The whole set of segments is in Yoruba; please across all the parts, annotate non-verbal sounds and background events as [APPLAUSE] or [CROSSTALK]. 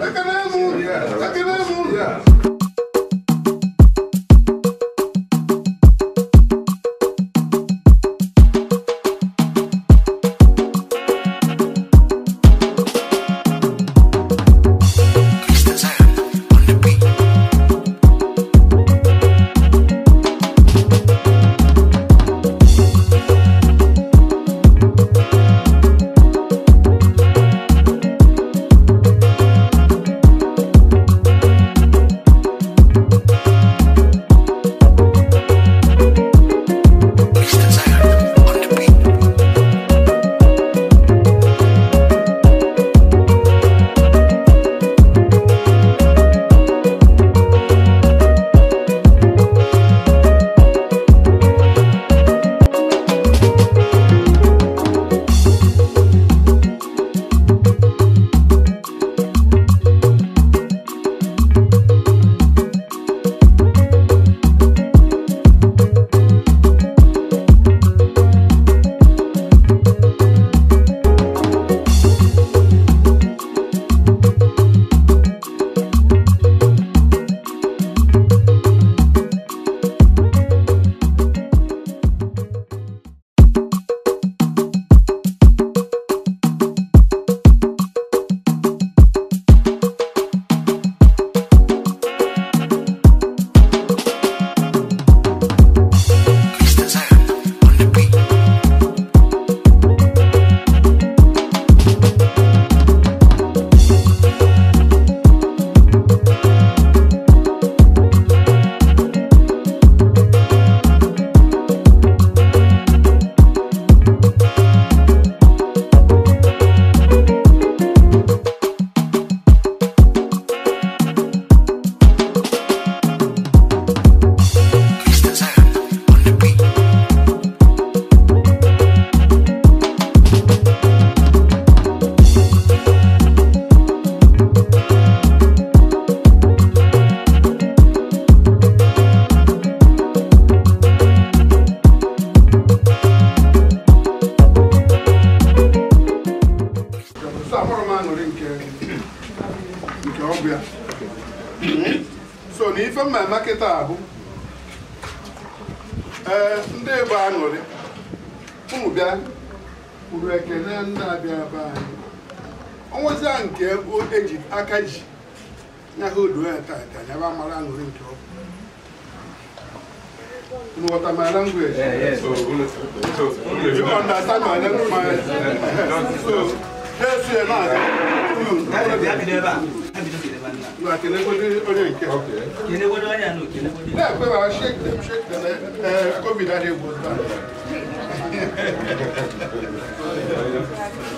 La tenemos, la tenemos. ọnwụzia nke ego eji aka ji ya ha odo ya tata ya ba mara aṅụrị nke ọ bụ nghọta my language you understand my language so na-eso ya na-aga onye nke na-ekwe ma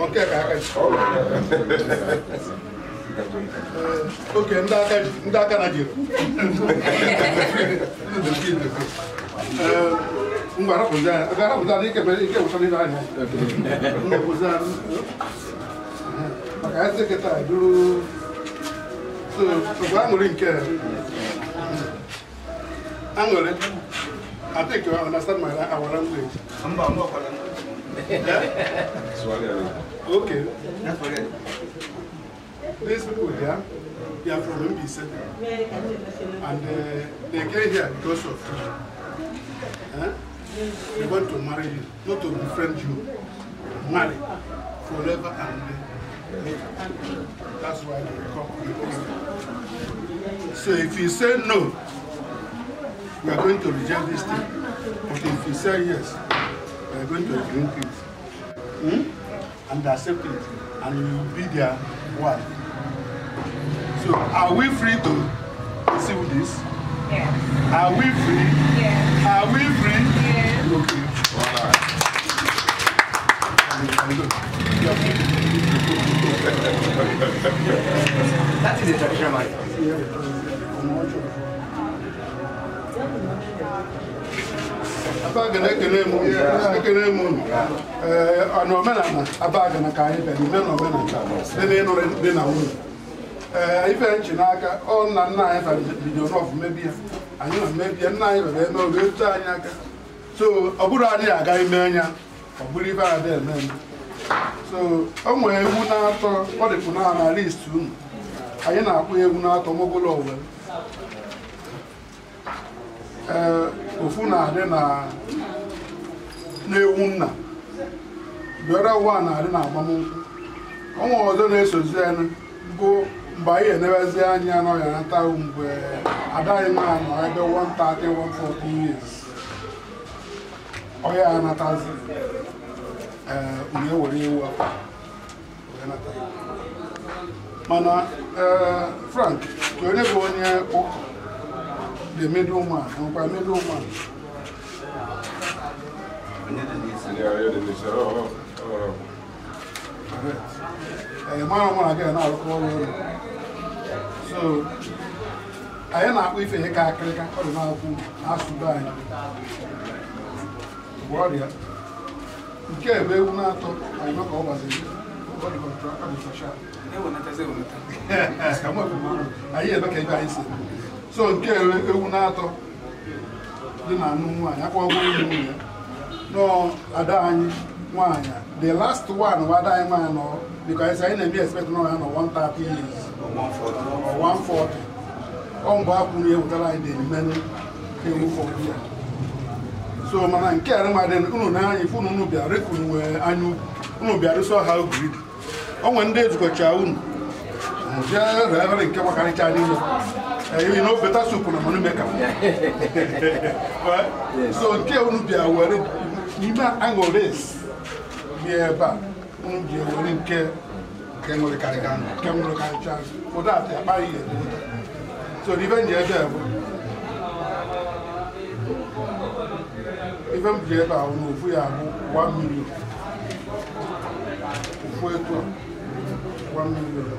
a ka aka ji ndị aka na jiri ngwa arapụta na anya uh, maka ya kịta duru aṅụrị nke aṅụrị I think you understand my our Swahili. Okay. That's what These people here, they are from Lumbisa. And uh, they came here because of you. Uh, huh? They want to marry you, not to befriend you. Marry forever and ever. That's why they come. here. So if you say no, we are going to reject this thing. But if you say yes, are going to drink it hmm? and accept it and you will be their wife. So are we free to receive this? Yes. Are we free? Yes. Are we free? Yes. Okay. All right. that is a traditional marriage. abagana ekele m ekele m unu ee eh, na omenala ka anyị na omenala eh, na ife n'aka ọ na nna anyị bido n'ọfụ mebi anyị na mmebi nna anyị rere eme oge etu anyị aka so ọ bụrụ anyị aga ime anya ọ bụrụ ibe eme o nwere egwu eh, na-atọ ọ dịpụ na anyị na-akpụ egwu na-atọ ofu na-adị na na-ewu nna bịara ụwa na-adị na agbamnkwụ ọnwa ọzọ na-esozi bụ mgbe anyị enebezi anya anọghị anata mgbe eh, adaghị m anọ ebe 130 years ọya anatazi ee eh, were ewu mana ee eh, Frank onye bụ onye ụka the middleman àwọn pa middleman. ẹ̀yẹ̀ márùn mọ́ra kẹ́yẹ̀ náà lọ́kọ́ lọ́rọ̀ so not na-akpọ ife ihe ka akịrịka ọ dị na-akwụ asụbe anyị bụ ọrịa nke ebe ewu na-atọ anyị maka ọ gbaziri anyị ebe ka ebe anyị si so nke ewu na-atọ dị na anụ nwaanyị akwụkwọ ewu nwunye nọ ada anyị nwaanyị the last one bụ ada anyị nwaanyị nọ because anyị na-eme expect nọ ya nọ 130 years 140 ọ mgbe akwụ na ewetara dị mmenụ ewu fọdụ ya so ndị ezukọcha unu Monsieur Reverend Kama Kanichani, you know better soup on a monumaker. So, dear, would be aware you not angle this. Yeah, but would be aware in care. Kemo le karikan, kemo le kanichan. For that, I buy it. So, even the other. Even the other, I will move here one million. One million.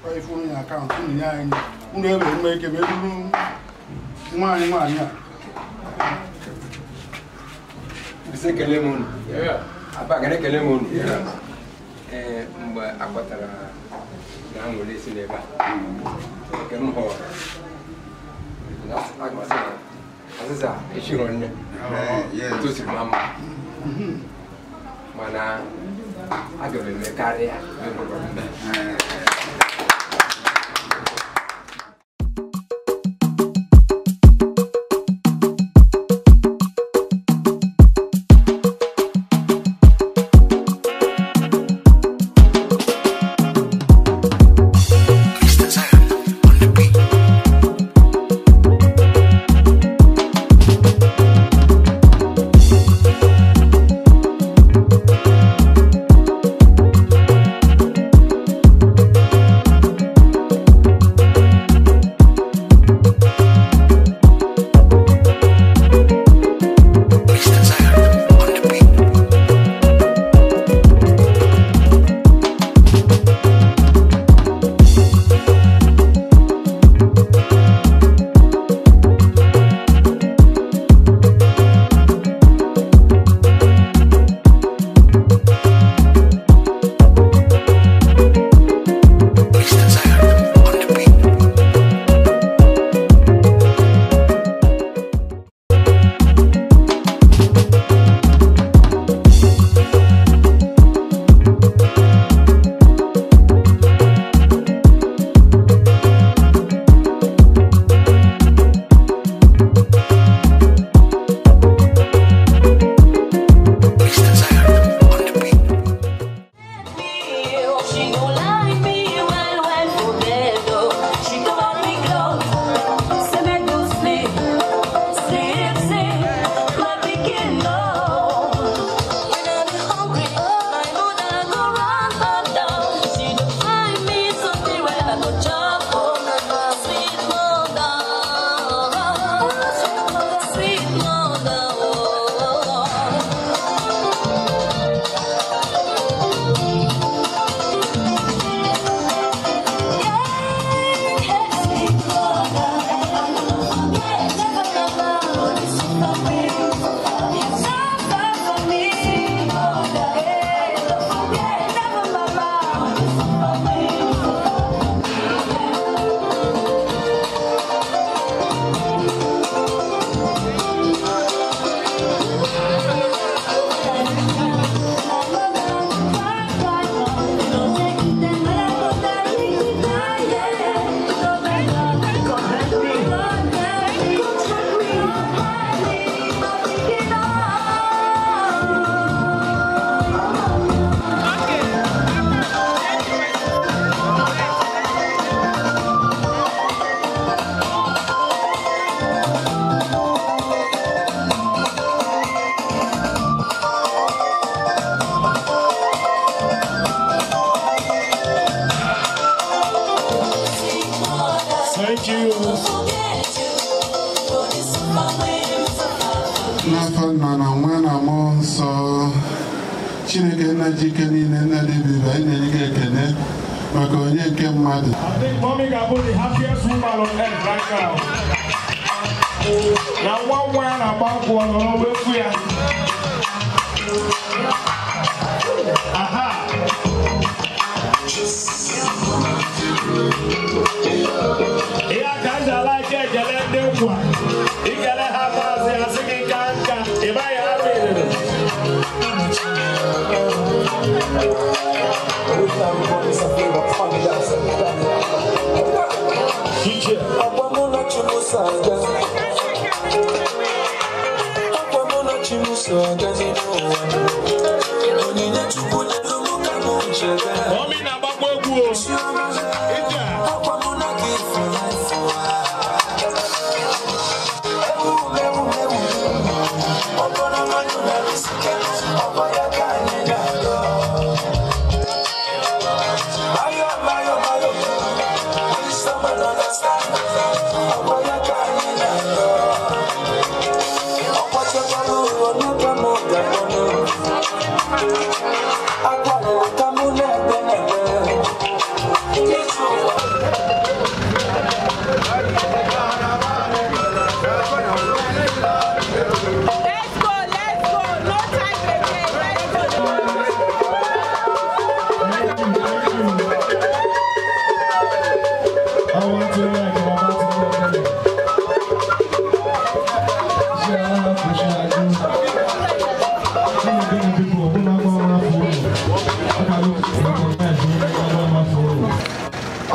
ifuru eh, oh, eh, ya akaụntụ unu nye eh, anyị unu ebe nwa ike wee nwaanyị nwaanyị a ee mgbe akpọtara na nwere isi n'ebe a echiro nne tosiri ma mma mana aga m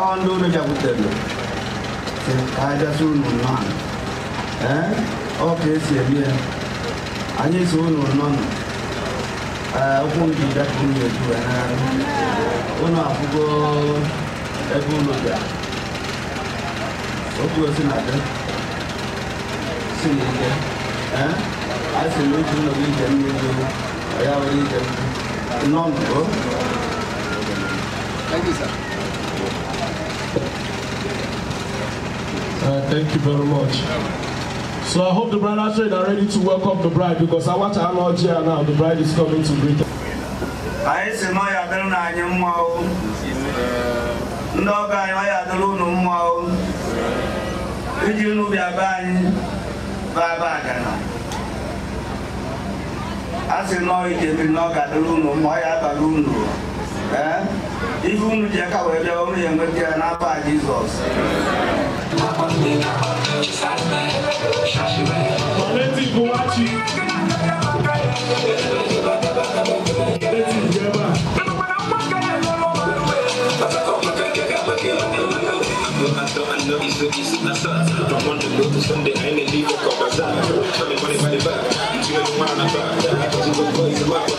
አሁን እንደሆነ ጃጉደሉ አይደሱን ኖናን ኦኬስ የሚያ አኔ ሶን ኖናን ọkùn di dẹkùn yẹn tu ẹ náà ọnà àfúgbọ ẹgbọn lọjà ọkùn ẹsẹ náà dẹ sí ní jẹ ẹ àìsè lójú náà bí jẹ ní ojú ọyá Uh, thank you very much. So I hope the are ready to welcome the bride because I watch now the bride is coming to greet us. anyị si na ya adịrị na anyị mma o ndị ọgọ anyị ya adịrị unu mma o iji unu bịa be anyị baba agana a si na ọ ijebiri na ọ ga-adịrị unu mma ọ ya abalị unu ee unu ji aka wee bịa ụnụ ya enweta ya n'afọ Jizọs I know don't want to go to Sunday. I need to leave for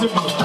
Simba.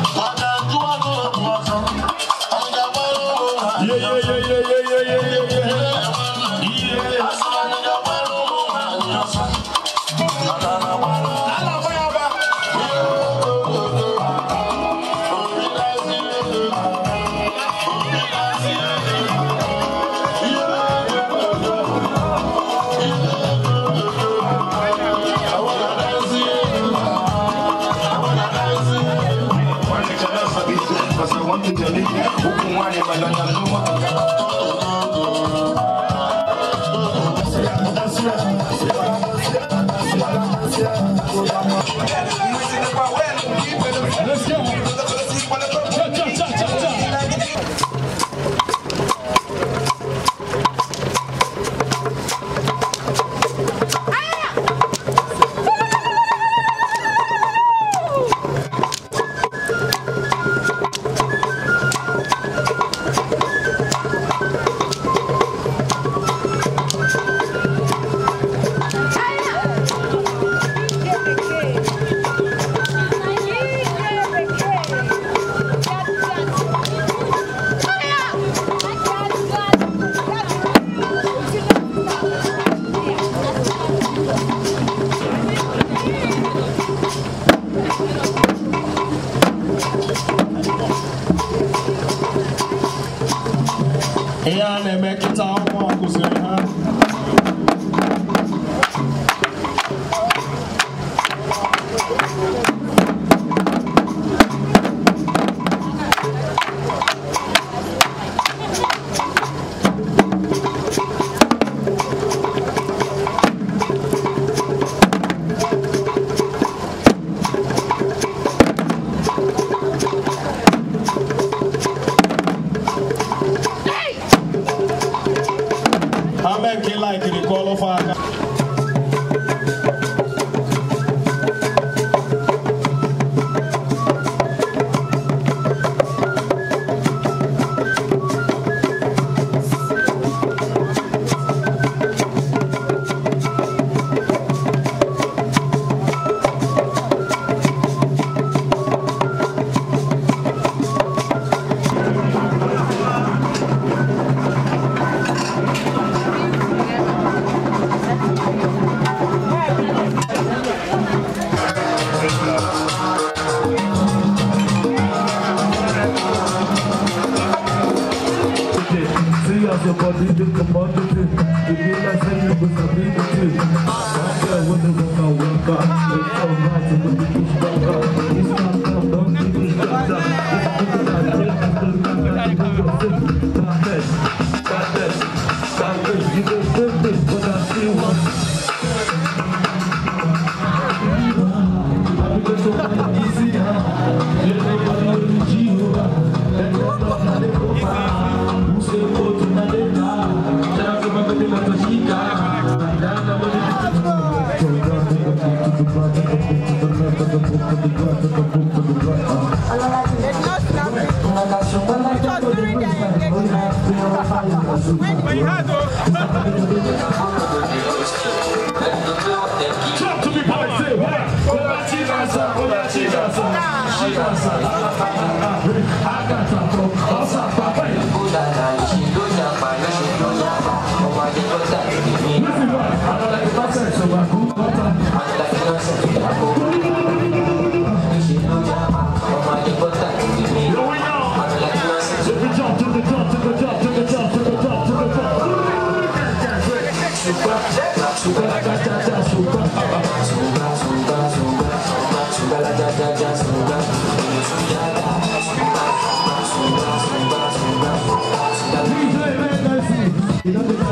さ、同じださ、違うさ、赤さ、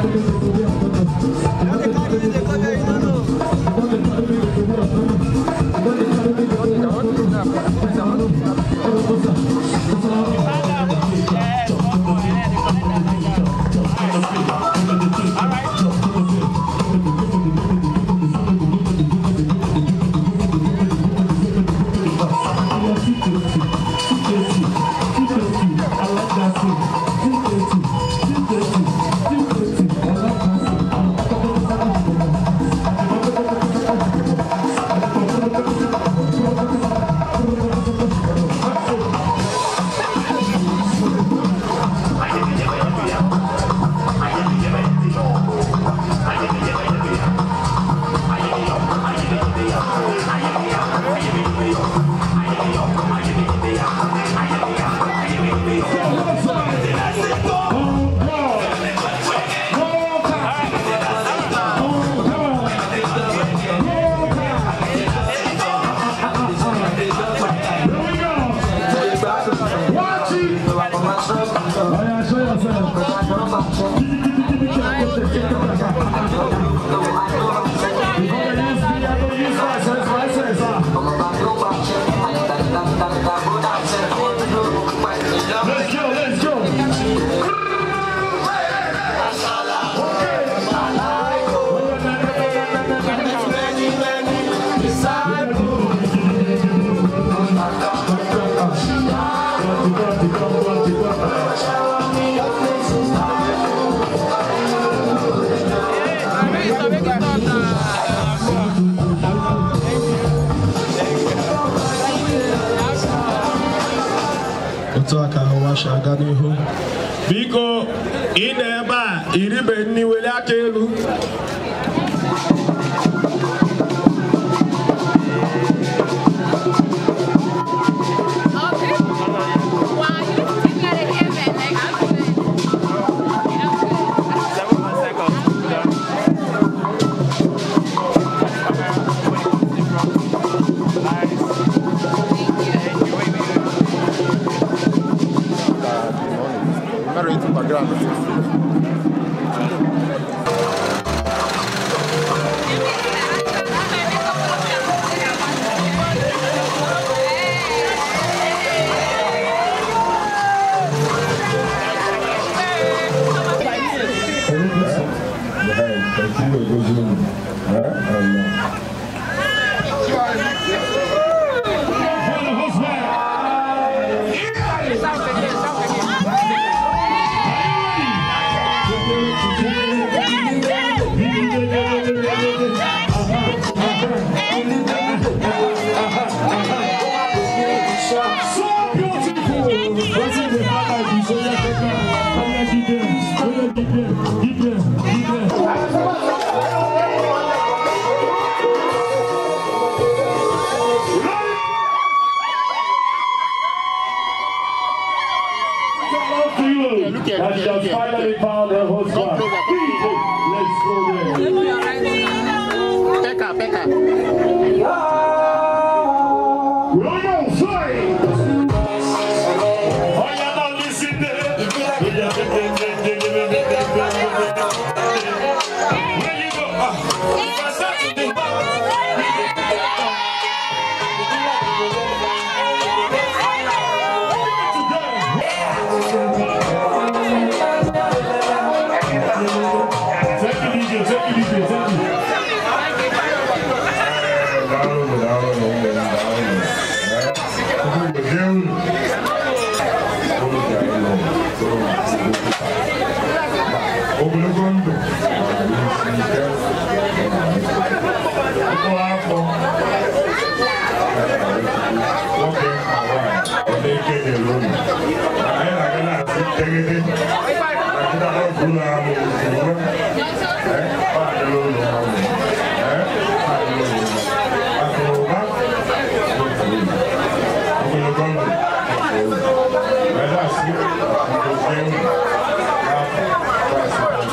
Thank you. fellow feel that she has finally found her husband. Let's go there. Pekka, Pekka.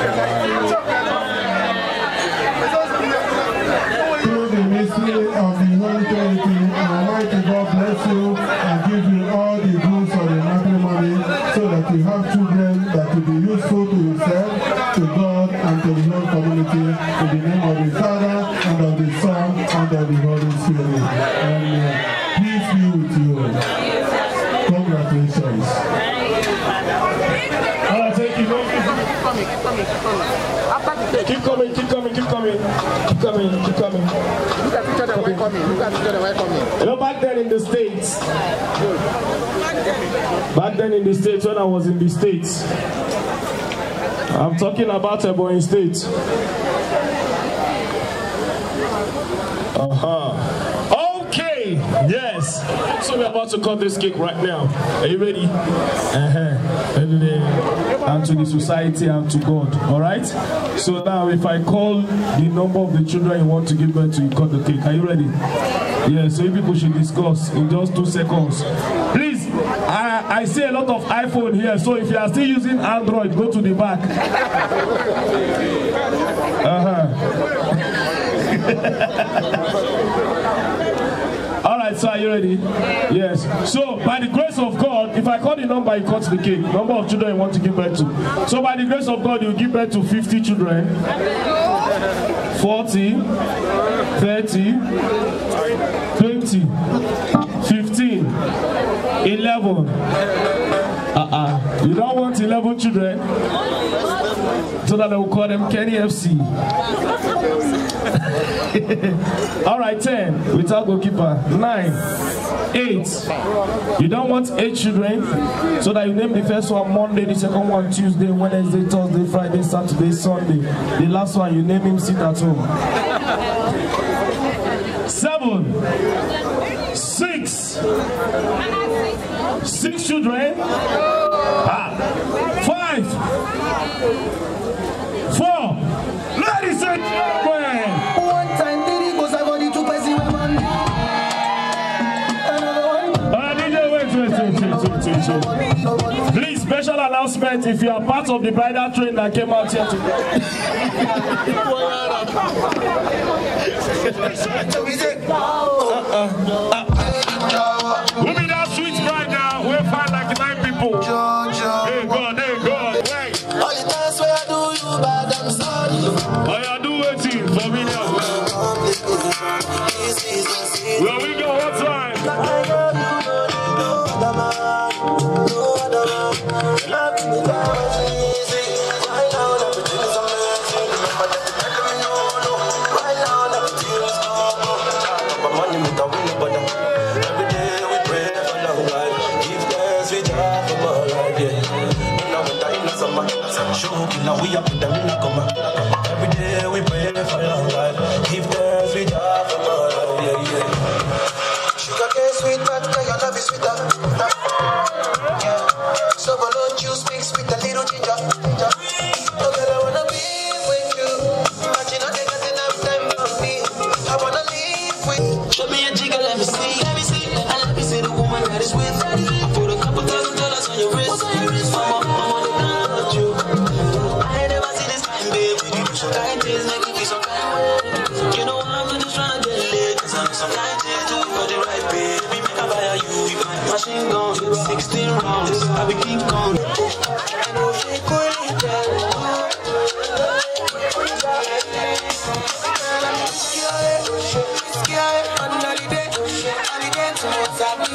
It's okay. It's okay. coming? Look at children were coming. You know, back then in the States, back then in the States, when I was in the States, I'm talking about a boy in states. Uh huh. Okay, yes. So we're about to cut this cake right now. Are you ready? Uh huh. And to the society and to God. All right? So now, if I call the number of the children you want to give birth to, you cut the cake. Are you ready? Yeah, so you people should discuss in just two seconds. Please, I, I see a lot of iPhone here, so if you are still using Android, go to the back. Uh huh. [LAUGHS] Yes, you ready? Yes. So, by the grace of God, if I call the number, you cut the cake. Number of children you want to give birth to. So, by the grace of God, you give birth to 50 children, 40, 30, 20, 15, 11. Uh-uh. You don't want 11 children? so that I will call them Kenny FC. [LAUGHS] All right, 10, without goalkeeper. 9, 8. You don't want 8 children, so that you name the first one Monday, the second one Tuesday, Wednesday, Thursday, Friday, Saturday, Sunday. The last one, you name him, sit at home. 7, 6. Six children. Ah. Five. Please, special announcement if you are part of the bridal train that came out here today. Who be that sweet bride now? We'll find like nine people. Hey God, hey God. Hey. All the I do you for me now. up with the nigga, man.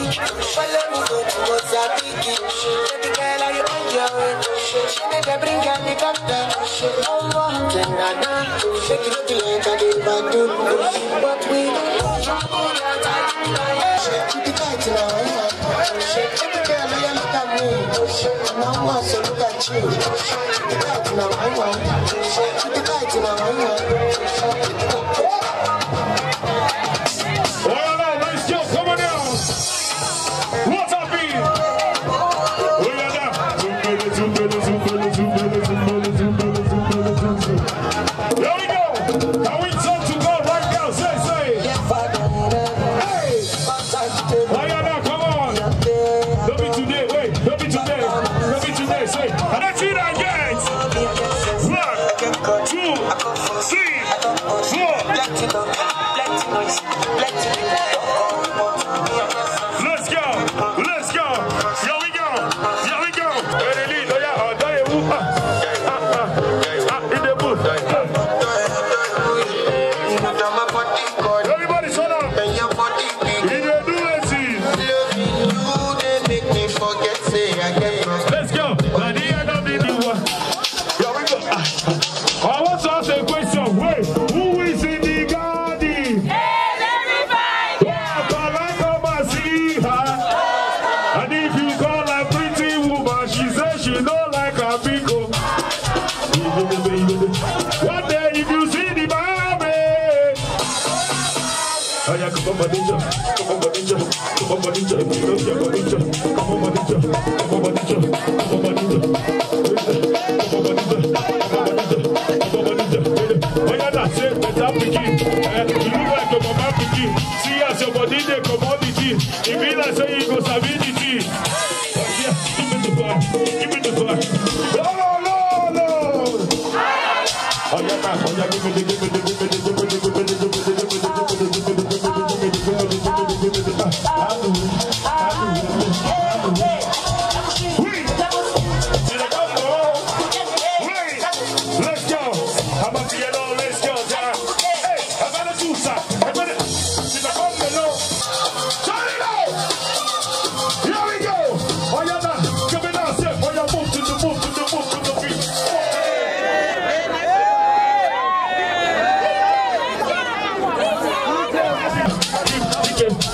Follow Baby girl, are you on your way? She made a bring and the doctor. Oh, what can I do? Shake it like I did back to But we don't trouble that I Baby girl, look at me? Now I so look at you. now, I want. Shake it tight now, I want.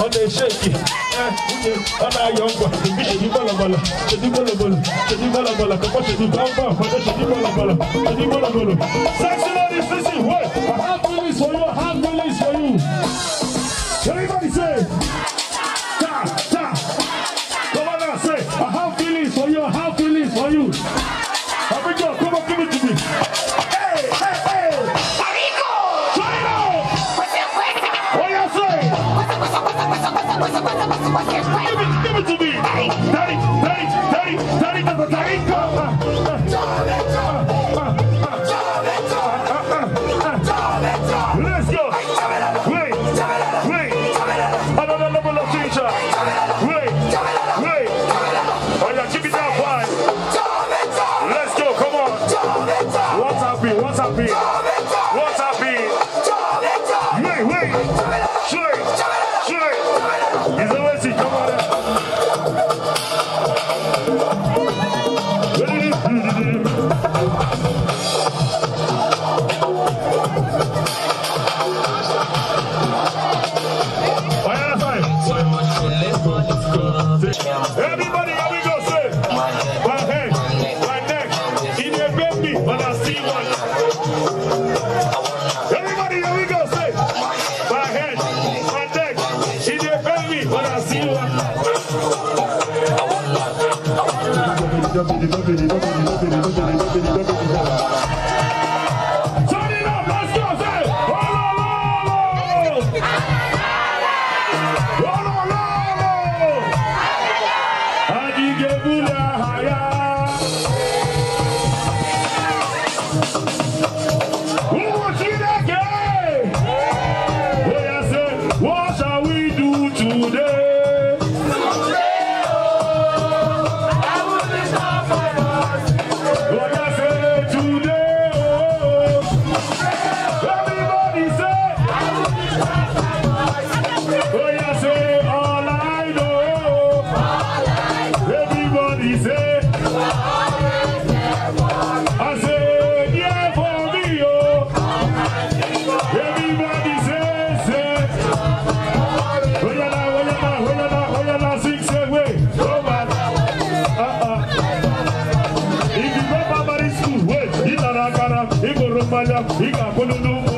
ọ̀nà ìṣèkì ẹ̀ ọ̀nà ayọ̀ ọ̀gbà èmi ṣèdí bọ̀lọ̀bọ̀lọ̀ ṣèdí bọ̀lọ̀bọ̀lọ̀ ṣèdí bọ̀lọ̀bọ̀lọ̀ kọ́kọ́ ṣèdí bọ́ńbà ọ̀kọ́dọ̀ ṣèdí bọ̀lọ̀bọ̀lọ̀ ṣèdí bọ̀lọ̀bọ̀lọ̀ sexual decision wey i have to use for your hand to Daddy, daddy, daddy, daddy, daddy, daddy, daddy, Everybody, here we go, say. My head, my neck, in a baby, but I see one. Everybody, here we go, say. My head, my neck, in a baby, but I see one. Bala, Bika Kolunu.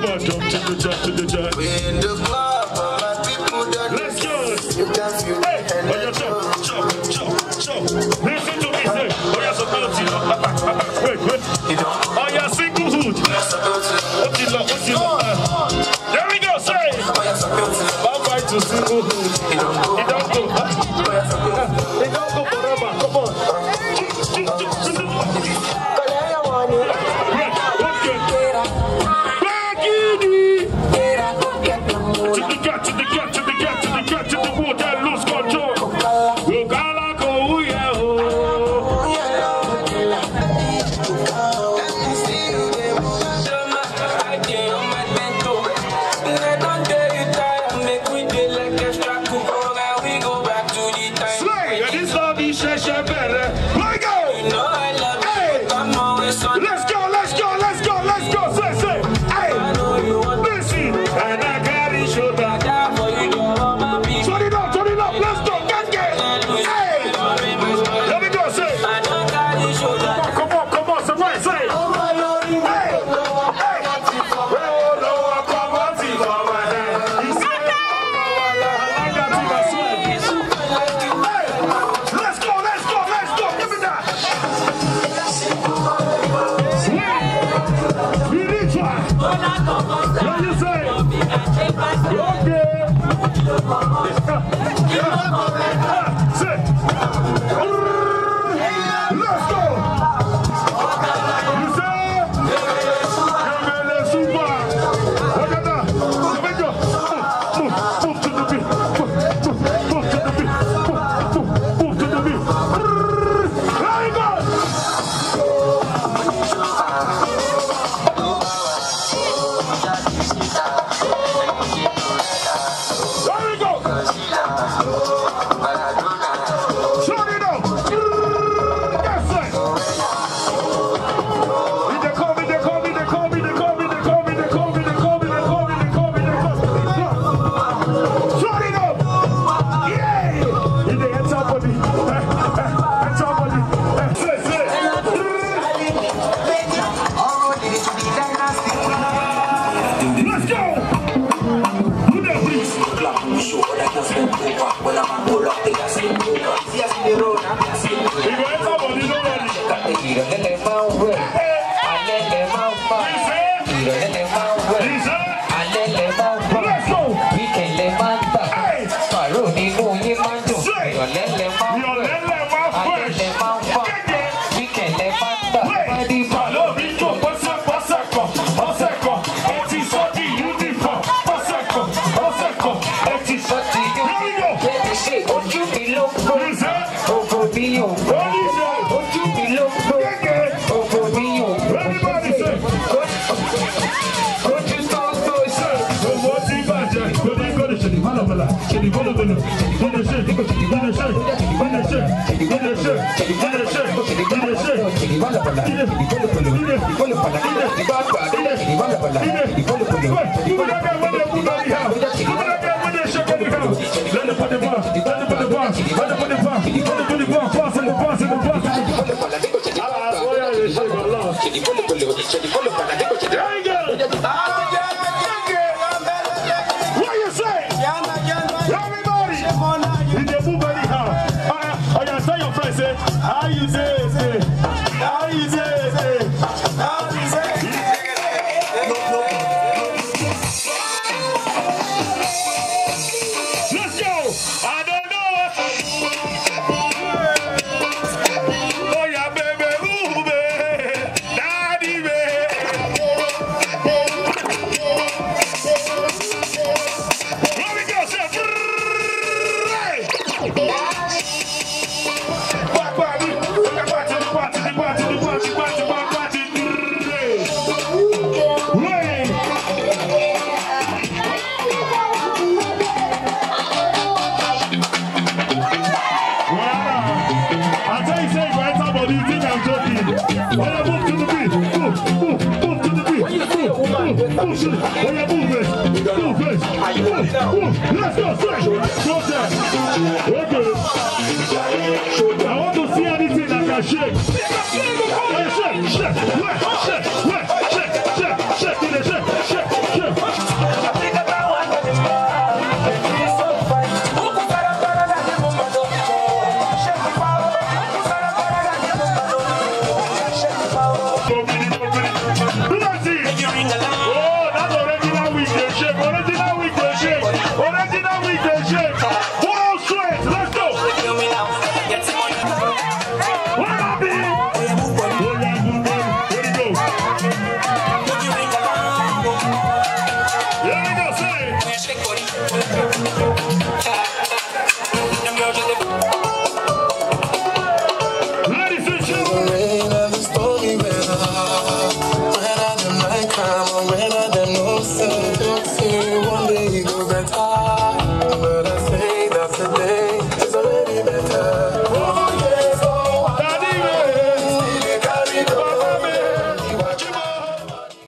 Come on, jump to the jump to the jump. Church the the water, lose. Thank [LAUGHS] I tell you, say right? enter you think I'm joking. When you move to the beat, to the beat. when you Let's go, that. Okay. I want to see that shake. shake, shake, shake,